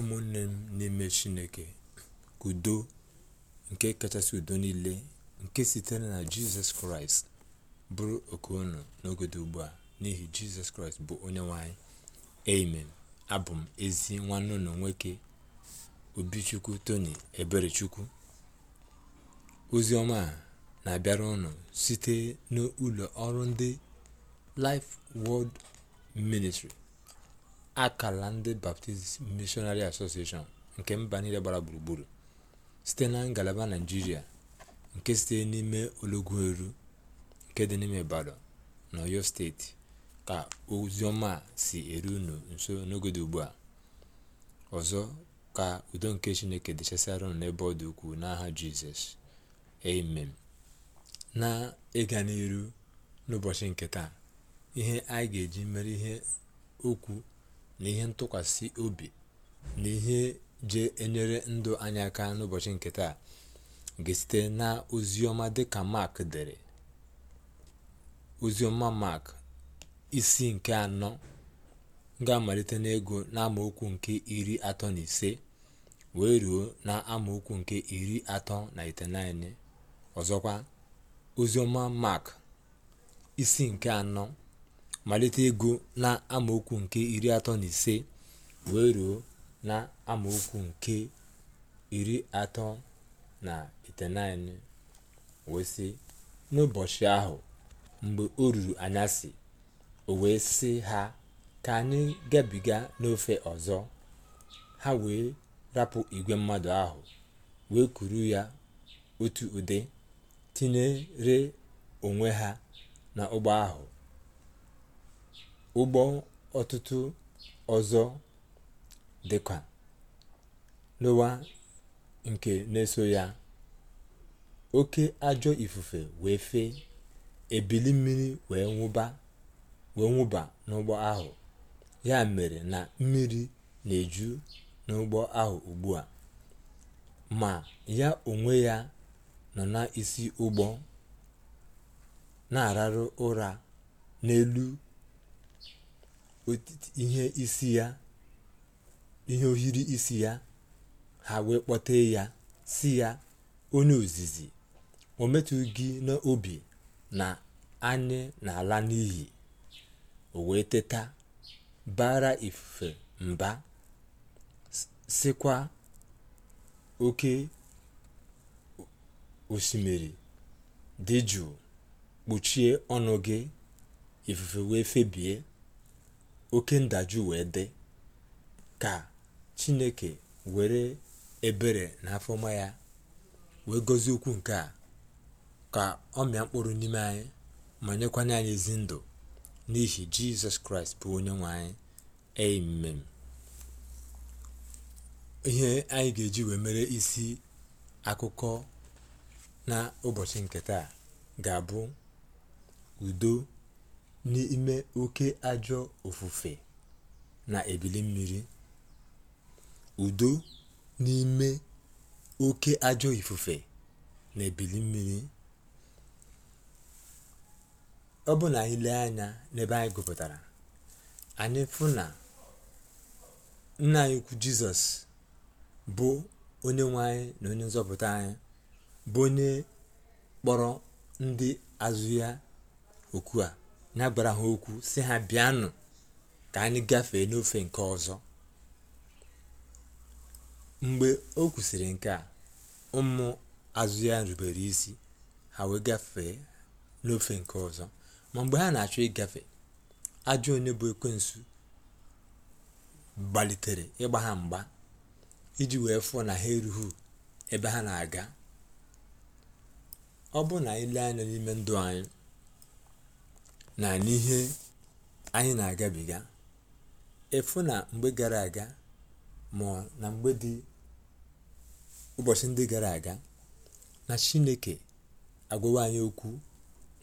ụmụnne m n'ime chineke udo nke kachasị udo niile nke sitere na jizọs kraịst bụrụ oke unu n'ogodo ugbu a n'ihi jizọs kraịst bụ onye nwanyị amen abụ m ezi nwanne unu nwoke obichukwu tony eberechukwu ozi ọma a na-abịara ụnụ site n'ụlọ ọrụ ndị life world ministry akala ndị baptist missionary association nke mba niile gbara gburugburu site na ngalaba naijiria nke site n'ime eru nke dị n'ime ibadan na steeti ka ozioma si eru unu nso n'oge ugbu a ọzọ ka udo nke chineke dịchasịara unu n'ebe ọ dị ukwuu n'aha jizọs amen na ịga n'iru n'ụbọchị nke taa ihe anyị ga-eji mere ihe okwu na ihe ntụkwasị obi na ihe je enyere ndụ anyị aka n'ụbọchị nke taa ga-esite na oziọma dịka Mark dere ozioma Mark isi nke anọ ga-amalite n'ego n'amaokwu nke iri atọ na ise wee ruo na amaokwu nke iri atọ na itenaine ọzọkwa ozioma Mark isi nke anọ malite ego na amaokwu nke iri atọ na ise wee ruo na amaokwu nke iri atọ na iteghete wee sị n'ụbọchị ahụ mgbe o ruru anyasị o wee sị ha ka anyị gabiga n'ofe ọzọ ha wee rapụ igwe mmadụ ahụ wee kuru ya otu ụdị tinyere onwe ha n'ụgbọ ahụ ụgbọ ọtụtụ ọzọ dị ka n'ụwa nke na-eso ya oke ajọ ifufe wee fee ebili mmiri wee nwụba n'ụgbọ ahụ ya mere na mmiri na-eju n'ụgbọ ahụ ugbu a ma ya onwe ya nọ n'isi ụgbọ na-ararụ ụra n'elu ihe isi ya ihe ohiri isi ya ha wee kpọtee ya si ya onye ozizi o metụ gị n'obi na anyị na n'ihi n'iyi o wee teta bara ifufe mba sikwa oke osimiri dị jụụ kpuchie ọnụ gị ifufe wee febie oke ndajụ wee dị ka chineke were ebere na afọma ya wee gozi okwu nke a ka ọ mịa mkpụrụ n'ime anyị ma nyekwanye anyị ezi ndụ n'ihi jizọs kraịst bụ onye nwe anyị amen ihe anyị ga-eji wee mere isi akụkọ na ụbọchị nke taa ga-abụ udo n'ime oke ajọ ofufe na ebili mmiri udo n'ime oke ajọ ifufe na ebili mmiri ọ bụ na anyị lee anya n'ebe anyị gụpụtara anyị fụ na nna anyị ukwu jizọs bụ onye nwe anyị na onye nzọpụta anyị bụ onye kpọrọ ndị azụ ya okwu a n'agbara ha okwu si ha bịanụ ka anyị gafee n'ofe nke ọzọ mgbe o kwusiri nke a ụmụ azụ ya rubere isi ha wee gafee n'ofe nke ọzọ ma mgbe ha na-achọ ịgafe ajọ onye bụ ekwensu gbalitere ịgba ha mgba iji wee fụọ na ha erughị ebe ha na-aga ọ bụ na ile anya n'ime ndụ anyị na n'ihe anyị na-agabiga efu na mgbe gara aga ma na mgbe dị ụbọchị ndị gara aga na chineke agwawa anyị okwu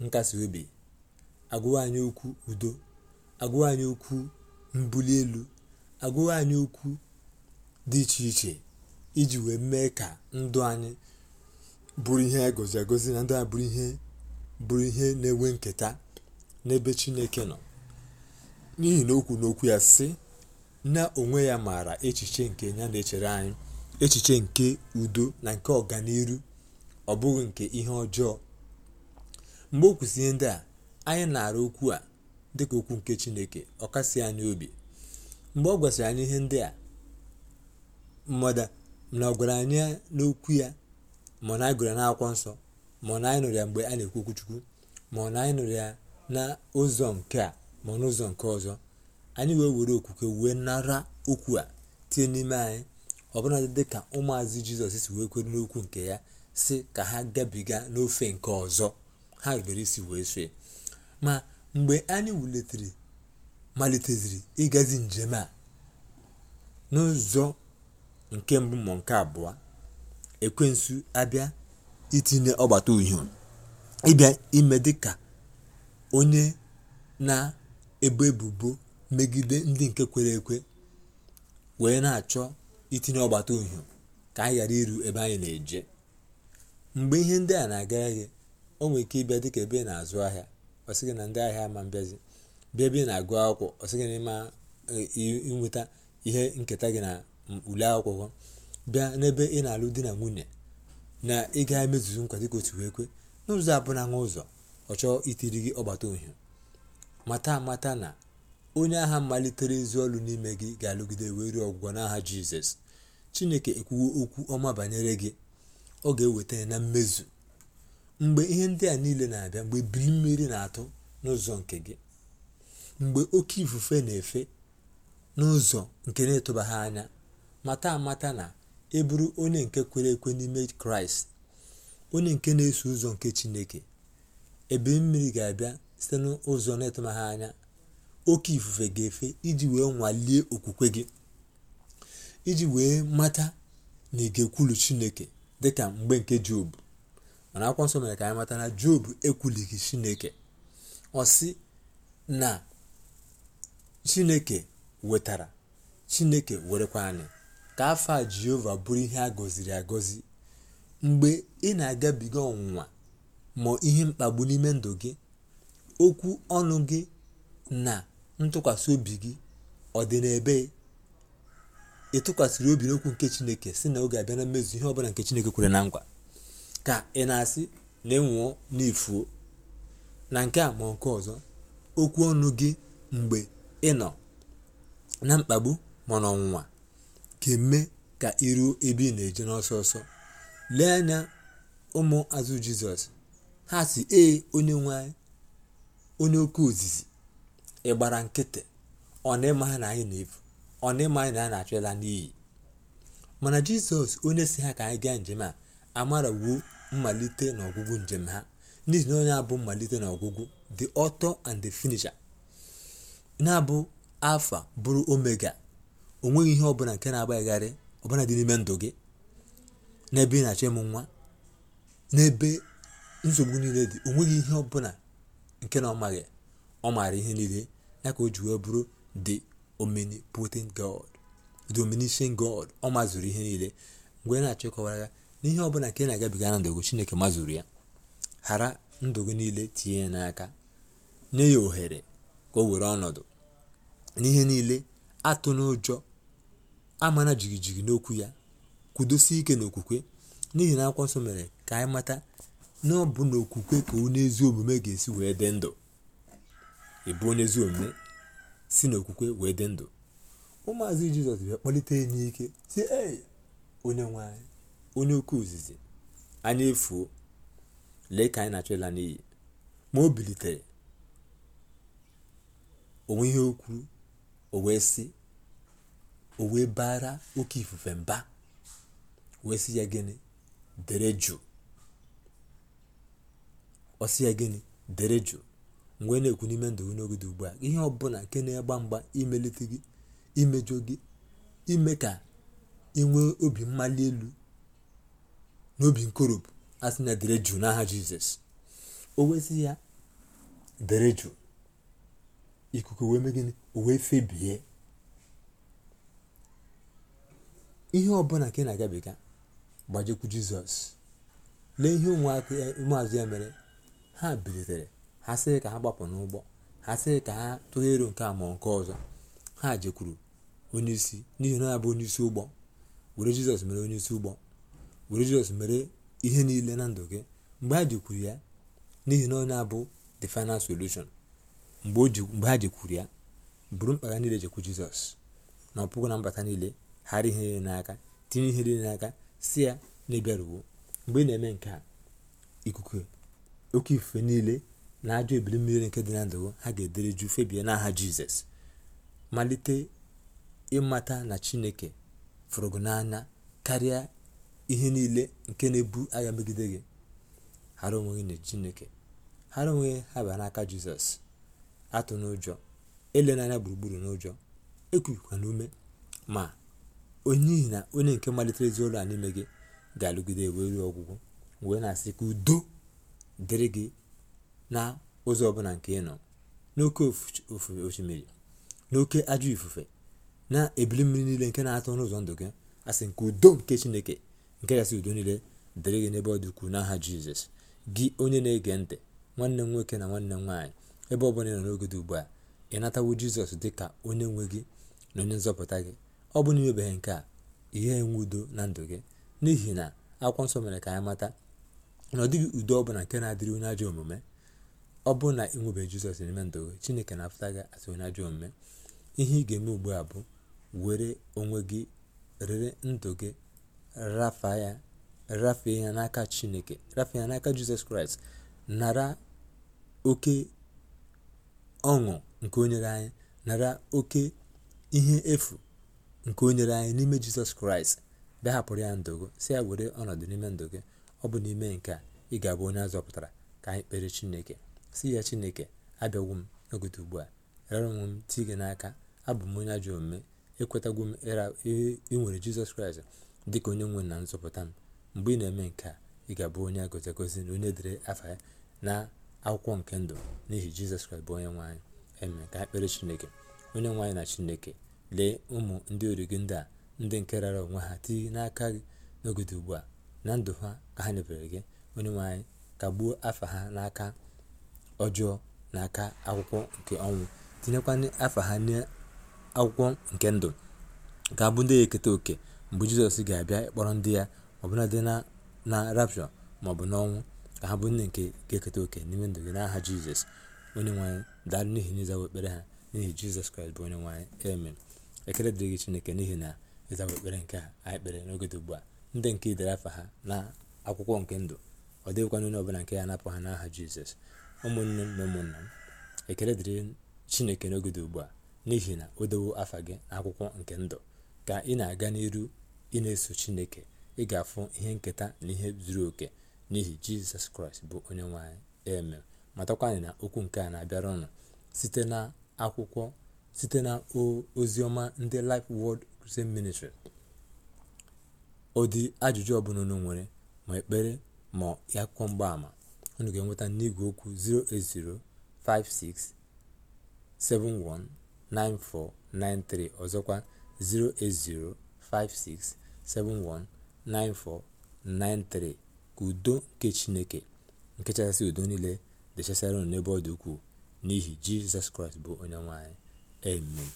nkasi obi agwawa anyị okwu udo agwawa anyị okwu mbuli elu agwawa anyị okwu dị iche iche iji wee mee ka ndụ anyị bụrụ ihe a e gozi na ndụ a bụrụ ihe bụrụ ihe na-enwe nketa n'ebe chineke nọ n'ihi na okwu n'okwu ya sị na onwe ya maara echiche nke ya na-echere anyị echiche nke udo na nke ọganiru ọ bụghị nke ihe ọjọọ mgbe o kwụsị ihe ndị a anyị na arụ okwu a dịka okwu nke chineke ọ kasị anyị obi mgbe ọ gwasịrị anyị ihe ndị a mmadụ na ọ gwara anyị n'okwu ya ma na anyị gụrụ n'akwụkwọ nsọ ma na anyị nụrụ ya mgbe a na-ekwu okwuchukwu chukwu ma na anyị nụrụ ya n'ụzọ nke a ma n'ụzọ nke ọzọ anyị wee were okwukwe wee nara okwu a tie n'ime anyị ọbụnadị dị ka ụmụazị jizọs si wee kwere n'okwu nke ya si ka ha gabiga n'ofe nke ọzọ ha rubere isi wee sue ma mgbe anyị wulitere maliteziri ịgazi njem a n'ụzọ nke mbụ ma nke abụọ ekwensu abịa itinye ọgbata uhie ịbịa ime dịka onye na-ebo ebubo megide ndị nke kwere ekwe wee na-achọ itinye ọgbata uhie ka anyị ghara iru ebe anyị na-eje mgbe ihe ndị a na aga gị o nwere ike ịbịa dịka ebe ị na-azụ ahịa ọsị gị na ndị ahịa ma mbịazi bịa ebe ị na-agụ akwụkwọ ọsị gị na ịma nweta ihe nketa gị na ule akwụkwọ bịa n'ebe ị na-alụ di na nwunye na ị emezuzu nkwado ka otu wee kwe n'ụzọ abụna nwa ụzọ ọ chọọ itiri gị ọgbata ohi mata mata na onye agha malitere ezi ọlụ n'ime gị ga-alụgide wee ruo ọgwụgwọ n'agha jizọs chineke ekwuwo okwu ọma banyere gị ọ ga-eweta ya na mmezu mgbe ihe ndị a niile na-abịa mgbe biri mmiri na-atụ n'ụzọ nke gị mgbe oke ifufe na-efe n'ụzọ nke na-etụbaghị anya mata amata na ị bụrụ onye nke kwere ekwe n'ime kraịst onye nke na-eso ụzọ nke chineke ebe mmiri ga-abịa site n'ụzọ na-etụmaghị anya oke ifufe ga-efe iji wee nwalie okwukwe gị iji wee mata na ịga ekwulu chineke dịka mgbe nke job mana akwụkwọ mere ka anyị mata na job ekwulighị chineke ọ sị na chineke wetara chineke werekwa anyị ka afọ a jehova bụrụ ihe a gọziri agọzi mgbe ị na-agabiga ọnwụnwa ma ihe mkpagbu n'ime ndụ gị okwu ọnụ gị na ntụkwasị obi gị ọ dị n'ebe ị tụkwasịrị obi n'okwu nke chineke si na oge abịa na mmezu ihe ọbụla nke chineke kwere na ngwa ka ị na-asị na ịnwụọ n'ifuo na nke a ma nke ọzọ okwu ọnụ gị mgbe ị nọ na mkpagbu ma n'ọnwụnwa ga-eme ka iruo ebe ị na-eje n'ọsọ ọsọ lee anya ụmụ azụ jizọs ha si ee onye nwe onye oke ozizi ịgbara nkịtị ọ na ịma ha na anyị na-efu ọ na ịma anyị na anyị na-achọ ịla n'iyi mana jizọs onye si ha ka anyị gaa njem a amarawuo mmalite na ọgwụgwụ njem ha n'ihi na onye abụ mmalite na ọgwụgwụ the author and the finisher na-abụ alfa bụrụ omega o nweghị ihe ọbụla nke na-agbaghịgharị ọbụla dị n'ime ndụ gị n'ebe ị na-achọ ịmụ nwa n'ebe nsogbu niile dị onweghị ihe ọbụla nke na ọ maghị ọ maara ihe niile ya ka o ji wee bụrụ the omnipotent god the omniscient god ọ mazụrụ ihe niile mgbe na-achọ ịkọwara ya n'ihe ọbụla nke na-agabiga na ndụ chineke mazụrụ ya ghara ndụ gị niile tinye ya n'aka nye ya ohere ka o were ọnọdụ n'ihe niile atụ n'ụjọ amana jigijigi n'okwu ya kwudosie ike n'okwukwe n'ihi na akwụkwọ nsọ mere ka anyị mata na ọ okwukwe ka onye ezi omume ga-esi wee dị ndụ ịbụ onye ezi omume si n'okwukwe wee dị ndụ ụmụazị jizọs bịa kpalite ya n'ike si ee onye nwanyị onye oke ozizi anyị efuo lee ka anyị na-achọ ịla n'iyi ma o bilitere onwe ihe o o wee sị o wee bara oke ifufe mba wee sị ya gịnị dere jụụ ọsị ya gịnị dere jụụ mgbe na-ekwu n'ime ndụ gị n'oge dị ugbu a ihe ọbụla nke na-egba mgba imelite gị imejọ gị ime ka ị nwee obi mmali elu obi nkoropụ asị na dere jụụ n'aha jizọs o wezi ya dere jụụ ikuku wee mee gịnị o wee febie ihe ọbụla nke na-agabiga gbajikwu jizọs lee ihe ụmụaka ụmụazụ ya mere ha bilitere ha sị ka ha gbapụ n'ụgbọ ha sị ka ha tụgheruo nke a ma nke ọzọ ha jekwuru onyeisi n'ihi na abụ isi ụgbọ were jizọs mere isi ụgbọ were jizọs mere ihe niile na ndụ gị mgbe ha jekwuru ya n'ihi na onye abụ the final solution mgbe ha jekwuru ya buru mkpa niile jekwu jizọs na ọpụgụ na mbata niile ghara ihe niile n'aka tinye ihe niile n'aka si ya na ịbịaruwo mgbe ị na-eme nke a ikuku oke ifufe niile na ajọ ebili mmiri nke dị na ndụ ha ga-edere jụ febie n'aha jizọs malite ịmata na chineke fụrụ n'anya karịa ihe niile nke na-ebu agha megide gị hara onwe gị na chineke hara onwe gị ha bịa n'aka jizọs atụ n'ụjọ elenanya gburugburu n'ụjọ ekwukwa n'ume ma onyeihi na onye nke malitere ezi ụlọ a n'ime gị ga-alụgide wee ruo ọgwụgwụ wee na-asị ka udo dịrị gị na ụzọ ọbụla nke ị nọ n'oke osimiri n'oke ajọ ifufe na ebili mmiri niile nke na-atọ n'ụzọ ndụ gị asị nke udo nke chineke nke gasị udo niile dịrị gị n'ebe ọ dị ukwuu n'aha jizọs gị onye na-ege ntị nwanne m nwoke na nwanne m nwaanyị ebe ọbụla ị nọ n'oge dị ugbu a ị natawo jizọs dị ka onye nwe gị na onye nzọpụta gị ọ bụ na imebeghị nke a ihe enwe udo na ndụ gị n'ihi na akwụkwọ nsọ mere ka anyị mata na ọ dịghị udo ọbụla nke na-adịrị onye ajọ omume ọ bụrụ na ị nwebeghị jizọs n'ime ndụ gị chineke na-afụta gị asị onye ajọ omume ihe ị ga-eme ugbu a bụ were onwe gị rere ndụ gị rafaa ya rafee ya n'aka chineke rafee ya n'aka jizọs kraịst nara oke ọṅụ nke o anyị nara oke ihe efu nke onyere anyị n'ime jizọs kraịst bịa hapụrụ ya ndụ gị si ya were ọnọdụ n'ime ndụ gị ọ bụ n'ime nke a ị ga-abụ onye azọpụtara ka anyị kpere chineke si ya chineke abịagwo m n'ogote ugbu a rara onwe m ti gị n'aka abụ m onye ajọ omume ekwetagwo m ịnwere jizọs kraịst dị ka onye nwe na nzọpụta m mgbe ị na-eme nke a ị ga-abụ onye agozi agozi na onye dịrị afa ya na akwụkwọ nke ndụ n'ihi jizọs kraịst bụ onye nwaanyị eme ka anyị kpere chineke onye nwanyị na chineke lee ụmụ ndị ori gị ndị a ndị nke rara onwe ha tinye n'aka gị n'ogide ugbu a na ndụ ha ka ha nyefere gị onye nwanyị ka gbuo afa ha n'aka ọjọọ n'aka akwụkwọ nke ọnwụ tinyekwana afa ha n'akwụkwọ nke ndụ ka abụ ndị ya eketa oke mgbe jizọs ga-abịa ịkpọrọ ndị ya ọbụladị na na rapshọ maọbụ n'ọnwụ ka ha bụ nne nke ga-eketa oke n'ime ndụ gị n'aha jizọs onye nwanyị daalụ n'ihi n'ịzawa ekpere ha n'ihi jizọs kraịst bụ onye nwanyị emen ekele dịrị gị chineke n'ihi na ịzawa ekpere nke a anyị kpere n'oge dị ugbu a ndị nke idere afa ha na akwụkwọ nke ndụ ọ dịghịkwana onye ọbụla nke ya apụ ha n'aha jizọs ụmụnne m na ụmụnna m ekele dịrị chineke n'oge dị ugbu a n'ihi na o dowo afa gị na akwụkwọ nke ndụ ka ị na-aga n'iru ị na-eso chineke ị ga-afụ ihe nketa na ihe zuru oke n'ihi jizọs kraịst bụ onye nwanyị eme matakwanyị na okwu nke a na-abịara ọnụ site na akwụkwọ site na oziọma ndị lif wod Christian ministri ụdị ajụjụ ọbụla unu nwere ma ekpere ma ya kwụọ mgbaama unu ga-enweta n'igwe okwu 08056719493 ọzọkwa 08056719493 ka udo nke chineke nke chasịrị udo niile dechasara unu n'ebe ọ dị ukwuu n'ihi jizọs kraịst bụ onye nwe anyị amen